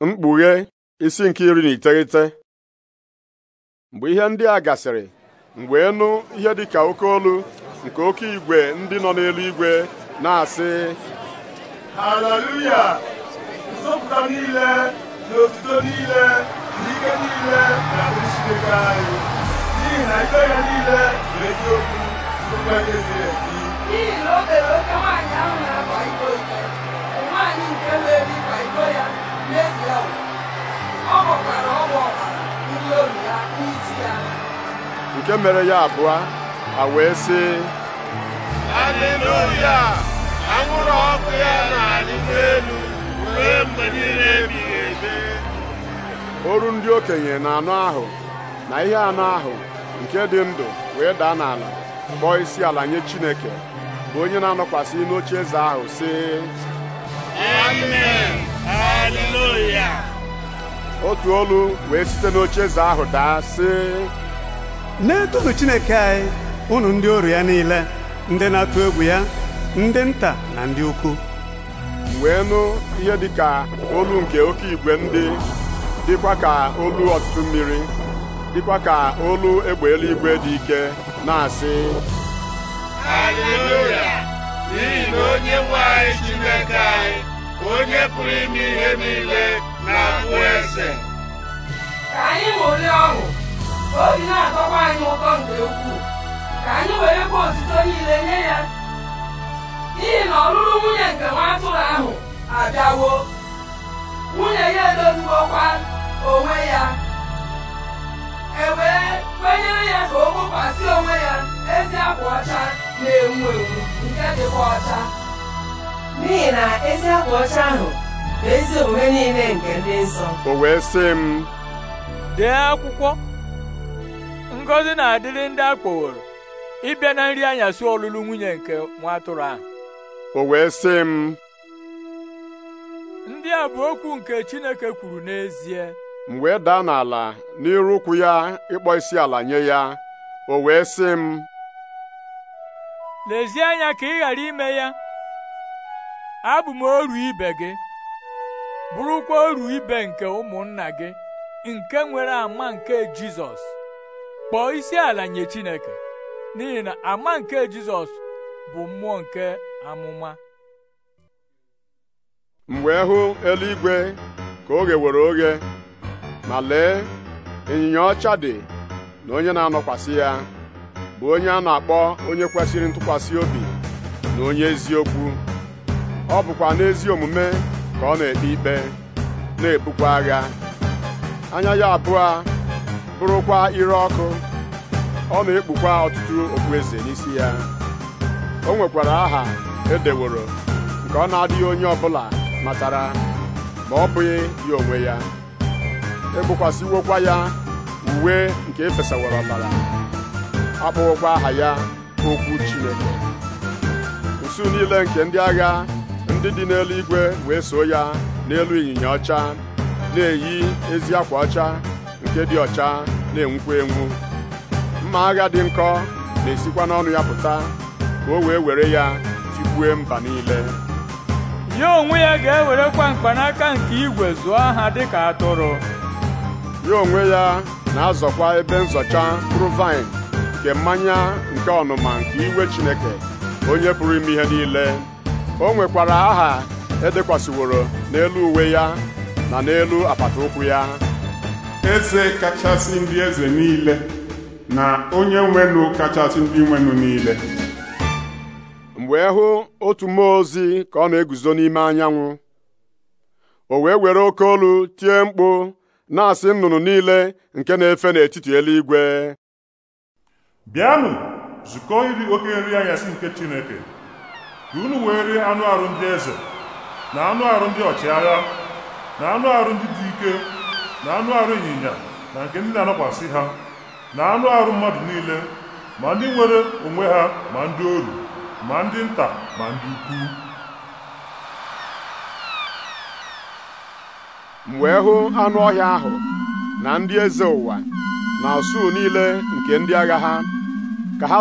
mkpughe isi nke iri na iteghete mgbe ihe ndị a gasịrị mgbe wee nụ ihe ka oke olu nke oke igwe ndị nọ n'elu igwe na-asị haleluya nzọpụta niile na otuto niile na ike niile na Chineke anyị n'ihi na ikpe ya niile bụ eziokwu bụkwa ihe ziri ezi n'ihi na o tere oke nwaanyị ahụ na-akwa iko nwaanyị nke na-eri iko ya nke mere ya abụọ a wee sị aleluya anwụrụ ọkụ ya na-arịgo elu ruo mgbe niile ebighị ebe Oru ndị okenye na anụ ahụ na ihe anụ ahụ nke dị ndụ wee daa n'ala kpọọ isi ala nye Chineke bụ onye na-anọkwasị n'oche eze ahụ sị amen otu olu wee site n'oche eze ahụ daa sị na-etonu Chineke anyị ụnụ ndị oru ya niile ndị na-atụ egwu ya ndị nta na ndị ukwu wee nụ ihe dị ka olu nke oke igwe ndị dịkwa ka olu ọtụtụ mmiri dịkwa ka olu egbe eluigwe dị ike na-asị ya n'ihi na onye nwanyị Chineke anyị onye pụrụ ime ihe niile na-abụ eze ka anyị ṅụrịa obi na-atọkwa anyị ụtọ nke ukwuu ka anyị were ebe otuto niile nye ya n'ihi na ọlụlụ nwunye nke nwa atụrụ ahụ abịawo nwunye ya edoziwokwa onwe ya e wee kwenyere ya ka o kpokwasị onwe ya ezi akwa ọcha na-enwu enwu nke dịkwa ọcha n'ihi na ezi akwa ọcha ahụ bụ ezi omume niile nke ndị nsọ o wee sị m dee akwụkwọ ngọzi na-adịrị ndị a kpọworo ịbịa na nri anyasị ọlụlụ nwunye nke nwa atụrụ ahụ o wee sị m ndị a bụ okwu nke Chineke kwuru n'ezie m wee daa n'ala n'iru ụkwụ ya ịkpọ isi ala nye ya o wee sị m lezie anya ka ị ghara ime ya abụ m oru ibe gị bụrụkwa oru ibe nke ụmụnna gị nke nwere ama nke Jizọs kpọọ isi ala nye Chineke n'ihi na ama nke Jizọs bụ mmụọ nke amụma Mgbe hụ eluigwe ka oge were oge ma lee ịnyịnya ọcha dị na onye na-anọkwasị ya bụ onye a na-akpọ onye kwesịrị ntụkwasị obi na onye eziokwu ọ bụkwa n'ezi omume ka ọ na-ekpe ikpe na-ebukwa agha anya ya abụọ bụrụkwa ire ọkụ ọ na-ekpukwa ọtụtụ okpueze n'isi ya o nwekwara aha edeworo nke ọ na-adịghị onye ọbụla matara ma ọ bụghị ya onwe ya egbokwasịwokwa ya uwe nke efesawara ọbara akpọwokwa aha ya okwu Chineke usu niile nke ndị agha ndị dị n'eluigwe wee so ya n'elu ịnyịnya ọcha na-eyi ezi akwa ọcha nke dị ọcha na-enwukwa enwu mma agha dị nkọ na-esikwa n'ọnụ ya pụta ka o wee were ya tigbue mba niile ya onwe ya ga-ewerekwa mkpanaka nke igwe zụọ ha dịka atụrụ ya onwe ya na-azọkwa ebe nzọcha mkpụrụ vaịn nke mmanya nke ọnụma nke iwe Chineke onye pụrụ ime ihe niile o nwekwara aha edekwasịworo n'elu uwe ya na n'elu apata ụkwụ ya eze kachasị ndị eze niile na onye nwenụ kachasị ndị nwenụ niile wee e hụ otu mmụọ ozi ka ọ na-eguzo n'ime anyanwụ o wee were oke olu tie mkpu na-asị nnụnụ niile nke na-efe n'etiti eluigwe bịanụ zukọ iri oke nri anyasị nke Chineke ka unu wee rie anụ arụ ndị eze na anụ arụ ndị ọchịagha na anụ arụ ndị dị ike na anụ arụ ịnyịnya na nke ndị na anọkwasị ha na anụ arụ mmadụ niile ma ndị nwere onwe ha ma ndị oru ma ndị nta ma ndị ukwu m wee hụ anụ ọhịa ahụ na ndị eze ụwa na usuu niile nke ndị agha ha ka ha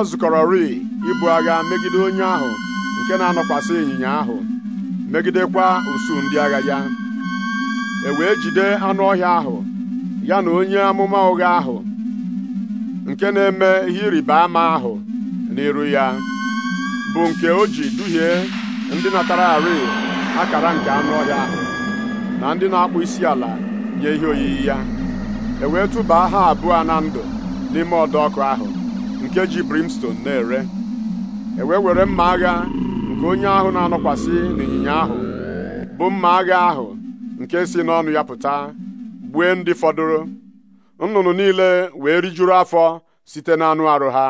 ri ibu agha megide onye ahụ nke na-anọkwasị ịnyịnya ahụ megidekwa usuu ndị agha ya e wee jide anụ ọhịa ahụ ya na onye amụma ụgha ahụ nke na-eme ihe ịrịba ama ahụ n'iru ya bụ nke o ji duhie ndị natara arị akara nke anụ ọhịa ahụ na ndị na-akpụ isi ala nye ihe oyiyi ya e wee tụbaa ha abụọ na ndụ n'ime ọdọ ọkụ ahụ nke ji brimstone na-ere e wee were mma agha nke onye ahụ na-anọkwasị n'ịnyịnya ahụ bụ mma agha ahụ nke si n'ọnụ ya pụta gbue ndị fọdụrụ nnụnụ niile wee rijuru afọ site n'anụ arụ ha